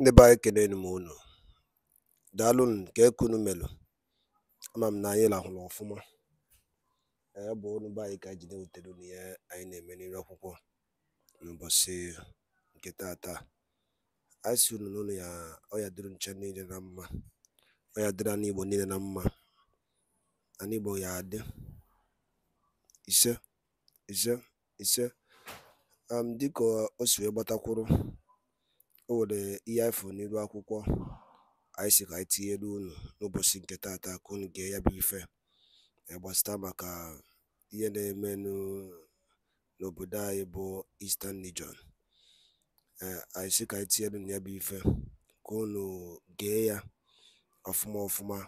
ndị be anyị kelenu m unu daalụnụ nke kunu melụ ama m na anyị lahụrụ ọfụma Ee, bụ unu be anyị ka anyị ji na-ewutere unu ihe anyị na-eme n'ire akwụkwọ n'ụbọchị nke taata. anyị si unu n'ụlọ ya ọya dịrị nche niile na mma ọya dịrị anụ igbo niile na mma anụ igbo ya adị ise ise ise dịka o si wee gbatakwuru o nwere ihe anyị fụrụ n'elu akwụkwọ anyị si ka anyị tinyere unu n'ụbọchị nke tata ka unu gee ya bụ ife gbasata maka ihe na-eme n'obodo anyị bụ Eastern Region e, anyị sị ka anyị tinyere unu ya bụ ife ka unu gee ya ọfụma ọfụma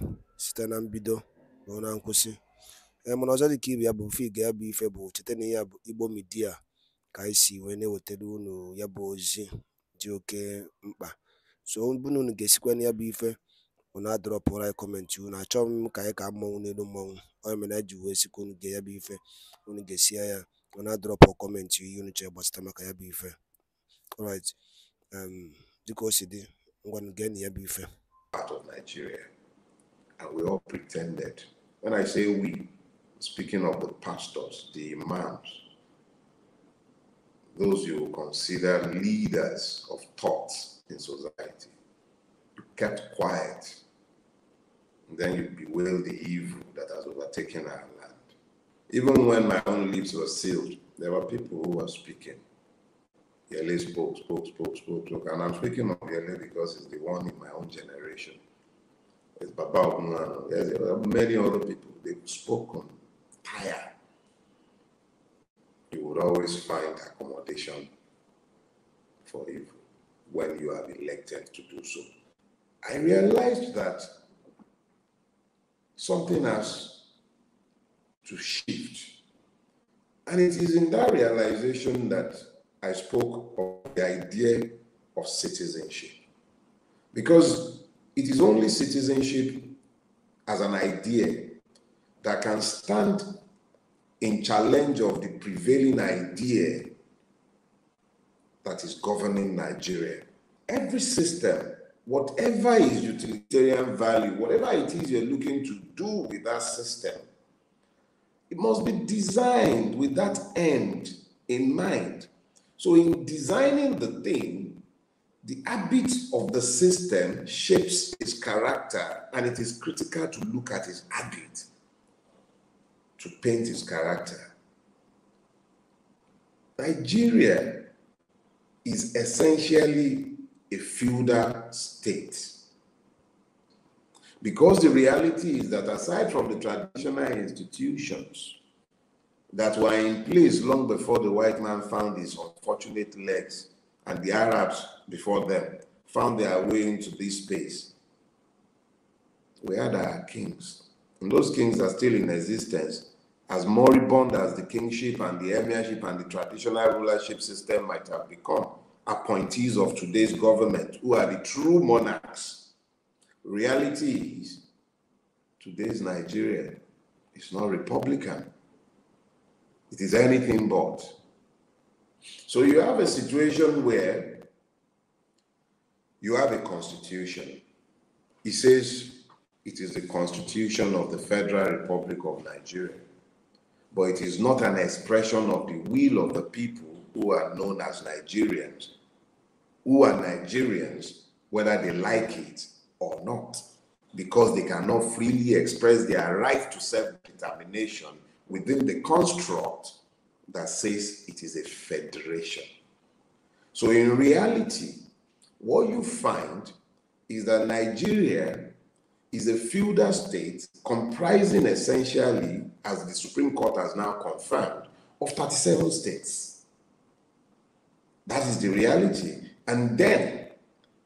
site na mbido ruo na nkwụsị e, mana ọzọ dị ka ibe ya bụ mfe gee ya bụ ife bụ cheta n'ihe ya bụ Igbo Media ka anyị si wee na-ewetara unu ya bụ ozi dị oke mkpa so unu unu ga-esikwa na ya bụ ife unu adọrọpụrụ anyị kọmentị unu achọghị m ka anyị ka mmọnwụ n'elu mmọnwụ ọ mere anyị ji wee sikwa unu ga ya bụ ife unu ga-esi ya unu adọrọpụ kọmentị ihe unu chọrọ gbasata maka ya bụ ife alright um, dịka o si dị ngwanụ gee na ya bụ ife of Nigeria and we all pretended when I say we speaking of the pastors the imams those you consider leaders of thought in society. You kept quiet. And then you bewail the evil that has overtaken our land. Even when my own lips were sealed, there were people who were speaking. Yele spoke, spoke, spoke, spoke, spoke. And I'm speaking of Yele because he's the one in my own generation. It's Baba Ogunwano. Many other people, they've spoken tired you will always find accommodation for evil when you are elected to do so. I realized that something has to shift. And it is in that realization that I spoke of the idea of citizenship. Because it is only citizenship as an idea that can stand in challenge of the prevailing idea that is governing Nigeria. Every system, whatever is utilitarian value, whatever it is you're looking to do with that system, it must be designed with that end in mind. So, in designing the thing, the habit of the system shapes its character, and it is critical to look at its habit to paint his character. Nigeria is essentially a feudal state. Because the reality is that aside from the traditional institutions that were in place long before the white man found his unfortunate legs and the Arabs before them found their way into this space, we had our kings. And those kings are still in existence as moribund as the kingship and the emirship and the traditional rulership system might have become, appointees of today's government, who are the true monarchs, reality is today's Nigeria is not Republican. It is anything but. So you have a situation where you have a constitution. It says it is the constitution of the Federal Republic of Nigeria but it is not an expression of the will of the people who are known as Nigerians, who are Nigerians, whether they like it or not, because they cannot freely express their right to self determination within the construct that says it is a federation. So, in reality, what you find is that Nigeria is a feudal state comprising essentially, as the Supreme Court has now confirmed, of 37 states. That is the reality. And then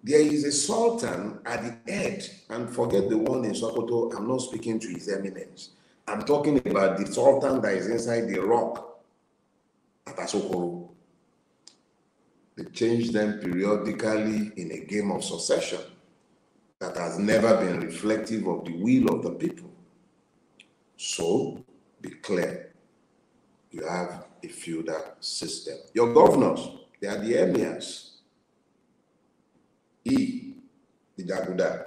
there is a sultan at the head, and forget the one in Sokoto, I'm not speaking to his eminence. I'm talking about the sultan that is inside the rock at Asokoro. They change them periodically in a game of succession that has never been reflective of the will of the people. So be clear. You have a feudal system. Your governors, they are the emirs. E, the Daguda.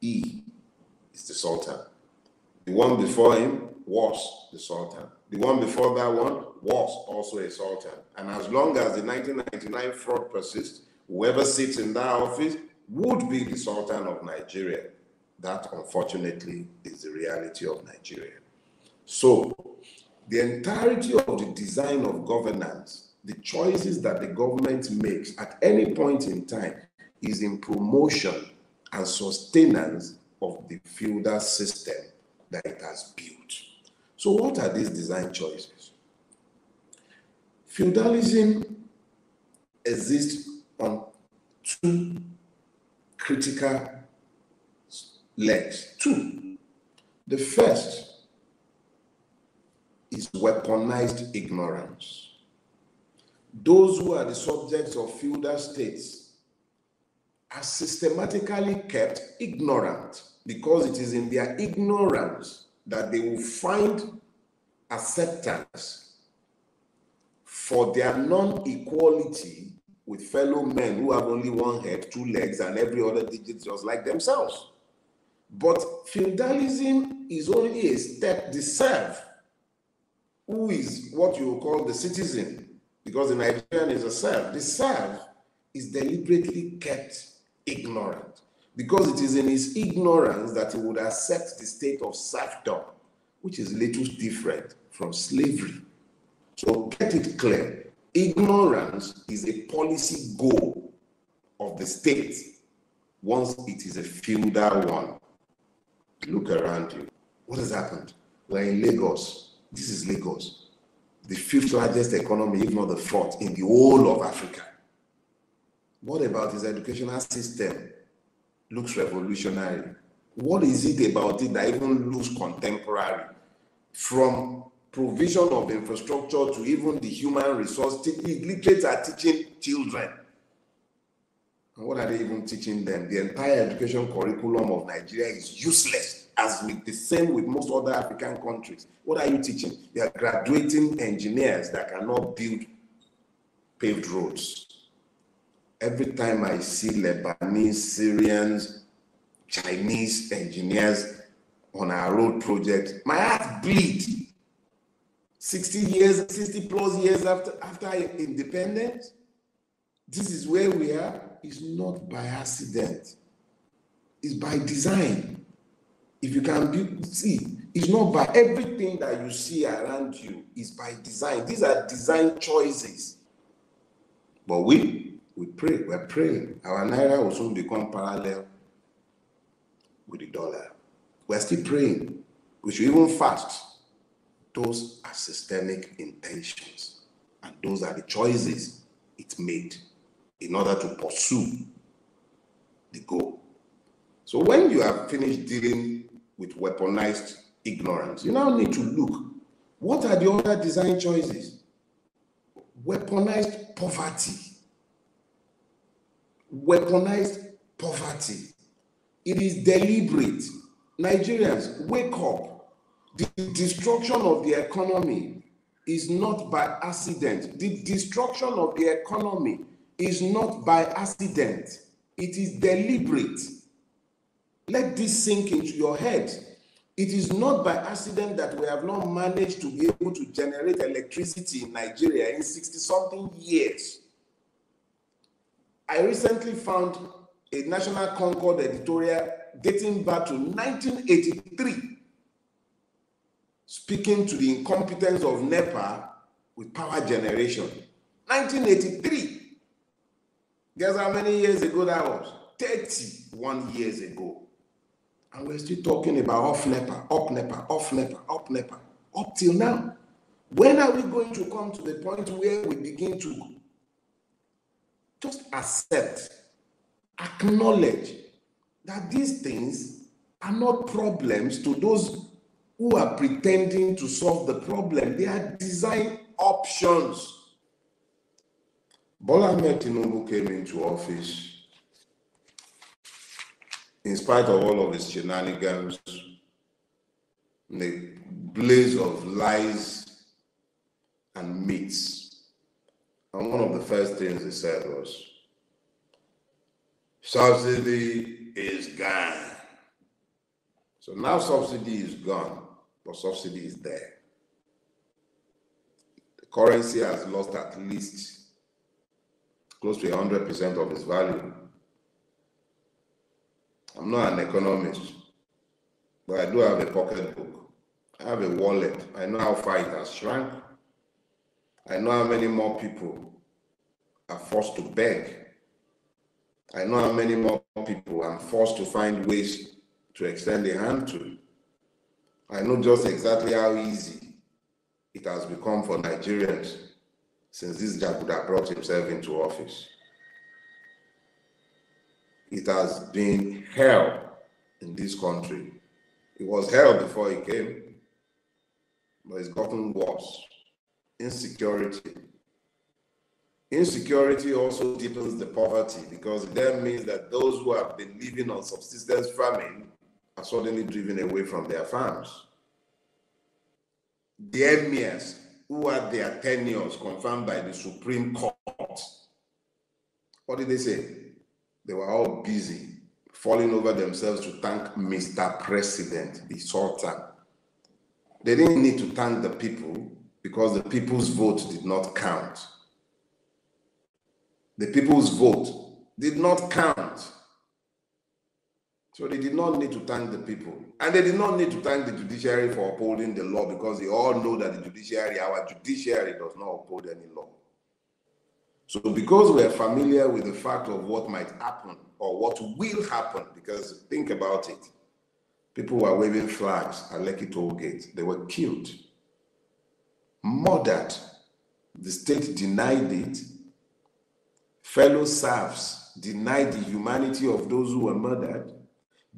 E is the Sultan. The one before him was the Sultan. The one before that one was also a Sultan. And as long as the 1999 fraud persists, whoever sits in that office would be the Sultan of Nigeria. That, unfortunately, is the reality of Nigeria. So, the entirety of the design of governance, the choices that the government makes at any point in time, is in promotion and sustenance of the feudal system that it has built. So, what are these design choices? Feudalism exists on two critical legs. Two, the first is weaponized ignorance. Those who are the subjects of feudal states are systematically kept ignorant because it is in their ignorance that they will find acceptance for their non equality with fellow men who have only one head, two legs, and every other digit just like themselves. But feudalism is only a step to serve who is what you call the citizen, because the Nigerian is a serf. The serf is deliberately kept ignorant, because it is in his ignorance that he would accept the state of serfdom, which is little different from slavery. So get it clear. Ignorance is a policy goal of the state once it is a feudal one. Look around you. What has happened? We're in Lagos. This is Lagos, the fifth largest economy, if not the fourth, in the whole of Africa. What about his educational system? Looks revolutionary. What is it about it that even looks contemporary from provision of infrastructure to even the human resource. Illiterates are teaching children. And what are they even teaching them? The entire education curriculum of Nigeria is useless, as with the same with most other African countries. What are you teaching? They are graduating engineers that cannot build paved roads. Every time I see Lebanese, Syrians, Chinese engineers on our road project, my heart bleeds 60 years, 60 plus years after, after independence, this is where we are, It's not by accident. It's by design. If you can be, see, it's not by everything that you see around you, is by design. These are design choices. But we, we pray, we're praying. Our Naira will soon become parallel with the dollar. We're still praying. We should even fast those are systemic intentions, and those are the choices it made in order to pursue the goal. So when you have finished dealing with weaponized ignorance, you now need to look what are the other design choices? Weaponized poverty. Weaponized poverty. It is deliberate. Nigerians, wake up. The destruction of the economy is not by accident. The destruction of the economy is not by accident, it is deliberate. Let this sink into your head. It is not by accident that we have not managed to be able to generate electricity in Nigeria in 60 something years. I recently found a National Concord editorial dating back to 1983 speaking to the incompetence of NEPA with power generation. 1983. Guess how many years ago that was? 31 years ago. And we're still talking about off NEPA, up NEPA, off NEPA, up NEPA, up till now. When are we going to come to the point where we begin to just accept, acknowledge that these things are not problems to those who are pretending to solve the problem. They are design options. Bola Tinubu came into office in spite of all of his shenanigans, the blaze of lies and myths. And one of the first things he said was, subsidy is gone. So now subsidy is gone but subsidy is there. The currency has lost at least close to 100% of its value. I'm not an economist, but I do have a pocketbook. I have a wallet. I know how far it has shrunk. I know how many more people are forced to beg. I know how many more people are forced to find ways to extend a hand to. I know just exactly how easy it has become for Nigerians since this Jaguda brought himself into office. It has been hell in this country. It was hell before he came, but it's gotten worse. Insecurity. Insecurity also deepens the poverty because it then means that those who have been living on subsistence farming are suddenly driven away from their farms. The emirs who had their tenures confirmed by the Supreme Court. What did they say? They were all busy falling over themselves to thank Mr. President, the Sultan. They didn't need to thank the people because the people's vote did not count. The people's vote did not count. So they did not need to thank the people. And they did not need to thank the judiciary for upholding the law because they all know that the judiciary, our judiciary, does not uphold any law. So because we're familiar with the fact of what might happen or what will happen, because think about it, people were waving flags at Lekki toll gate. They were killed, murdered. The state denied it. Fellow serfs denied the humanity of those who were murdered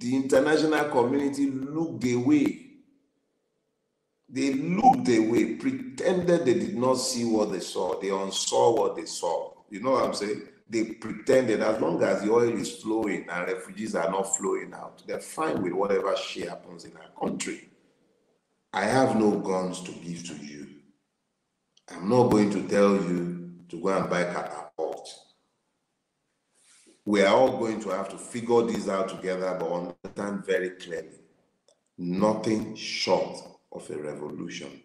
the international community looked away. They looked away, pretended they did not see what they saw. They unsaw what they saw. You know what I'm saying? They pretended as long as the oil is flowing and refugees are not flowing out, they're fine with whatever shit happens in our country. I have no guns to give to you. I'm not going to tell you to go and buy Qatar we are all going to have to figure this out together, but understand very clearly nothing short of a revolution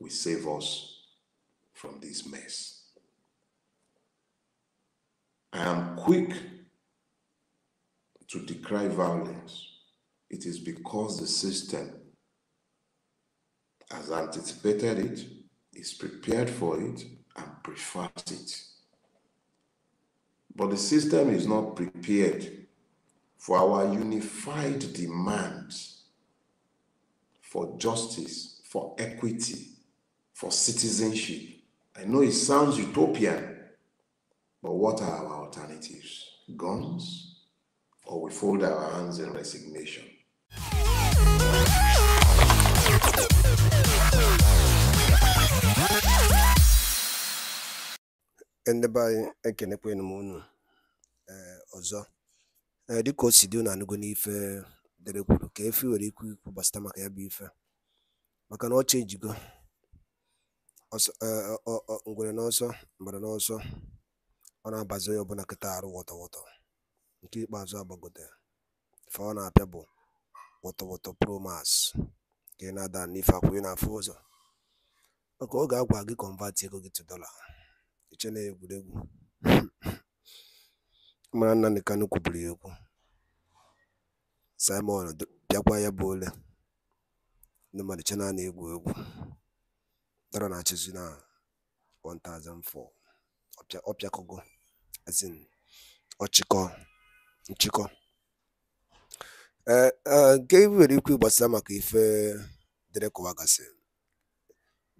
will save us from this mess. I am quick to decry violence. It is because the system has anticipated it, is prepared for it, and prefers it. But the system is not prepared for our unified demands for justice, for equity, for citizenship. I know it sounds utopian, but what are our alternatives? Guns? Or we fold our hands in resignation? ndị be anyị ekenekwanụ unu eh, ọzọ eh, dịka o si dị na anụgo n'ife dere kwuru ka efe nwere ikwu ikwu gbasịta maka ya bụ ife maka na ọ chenjigo eh, ngwere n'ọsọ mgbere n'ọsọ ọ na-abazi onye ọbụla kịta arụ wọtọwọtọ nke ikpeazụ agbagote fa ọ na-apịa bụ wọtọwọtọ promas ka ị na-ada n'ife akwụ ị na-afụ ụzọ maka ọ ga-agwa gị kọnvatị ego gị tu dọla Iche na egwuregwu mara nna Kanu kwuburu ya okwu Simon bịakwa ya bụ ole ndị mmadụ che na egwu egwu dara na-achịzi na 1004 ọpịakọgo ezin ọchịkọ nchịkọ ee eh, eh, nke nwere ikwu gbasara maka ife dịrị kụwagasị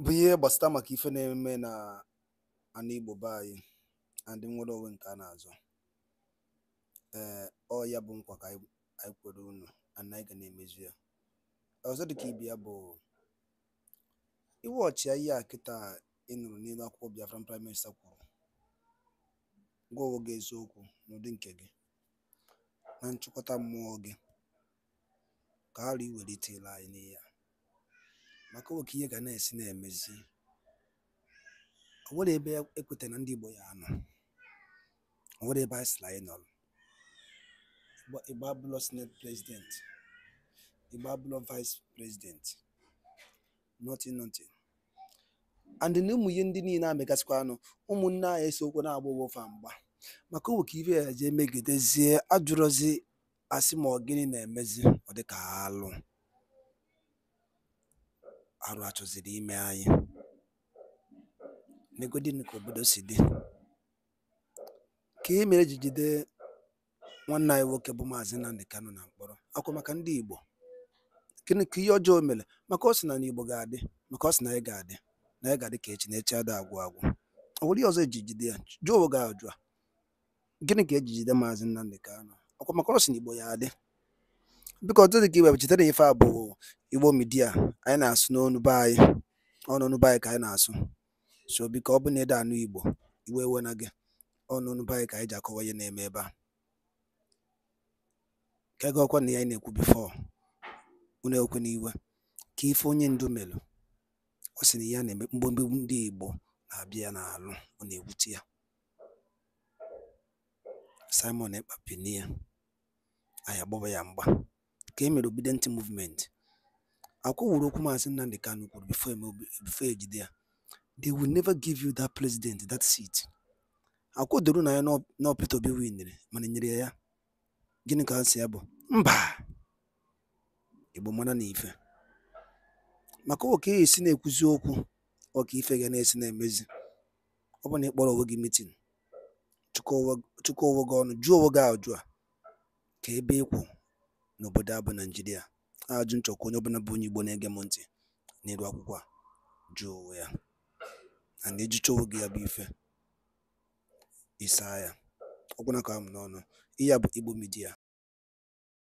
bụ ihe gbasata maka ife na-eme na ana Igbo be anyị na ndị nwere onwe nke a na-azọ ee eh, ọ ya bụ nkwa ka anyị kwere unu ana anyị ga na-emezu ya ọzọ dịka ibe ya bụ iwu ọchịagha a kịta ị nụrụ n'elu akwụkwọ Biafra, prime minista kwuru gwa onwe gị eziokwu n'ụdị nke gị na nchịkọta mmụọ gị ka ha iwelite ile anyị n'ihe a maka nwoke ihe ga na-esi na-emezi o nwere ebe ekweta na ndị Igbo ya anọ o nwere ebe anyị sịrị anyị nọrọ Igbo abụlọ senate president Igbo abụlọ vice president nothing nothing and na ụmụ ihe ndị niile amegasịkwa anụ ụmụnne anyị esokwu na-agba ofe mgba maka owe ka ibe ya jee megidezie ajụrụzi asị ma ọ gịnị na-emezi ọ dịka alụ arụ achọziri ime anyị negodini ka obodo si dị ka e mere ji jide nwanne anyị nwoke bụ maazị Nnamdi Kanu na mkpọrọ akwa maka ndị Igbo gịnị ka ihe ọjọọ mere maka ọ sị na n'Igbo ga-adị maka ọ sị na anyị ga-adị na anyị ga-adị ka echi na echi ada agwụ agwụ ọ nwere ihe ọzọ eji jide ya jụọ oge ajụ a gịnị ka ejijide maazị Nnamdi Kanu akwa maka ọ sị na Igbo ya adị biko otu dị ka iwe bụ chetara ife a bụ igbo midia anyị na-asụ n'ọnụ be anyị ọnụnụ be anyị ka anyị na-asụ so biko ọ bụ na ede anụ igbo iwe ewe na gị ọnụnụ be anyị ka anyị ji akọwa ihe na-eme ebe a ka ego ọkwa na ya anyị na-ekwu bifo unu ekwe na iwe ka ife onye ndu melụ ọ sị na ya na-eme mgbemgbe ndị igbo na-abịa ya n'alụ ọ na-ewute ya Simon Ekpa pini anyị agbaba ya mgba ka e mere Obedient Movement akwụwụrụ okwu Maazị Nnamdi Kanu kwuru before e before ejide ya they will never give you that president that seat akwụdoro na ya na Peter Obi winere mana e nyere ya gịnị ka ha si ya bụ mba Igbo mara na ife maka oke esi na-ekwuzi okwu ọka ife ga na-esi na-emezi ọ bụ na ị kpọrọ onwe gị chukwu chụkọwa gị ọnụ jụọ onwe gị ajụ a ka ebe ịkwụ n'obodo abụ bụ A Ajụ nchọkwa onye ọbụla bụ onye Igbo na-ege m ntị n'elu akwụkwọ a jụọ ya na na gị ya bụ ife ịsaa ya ọgwụna ka m n'ọnụ ihe a bụ Igbo midia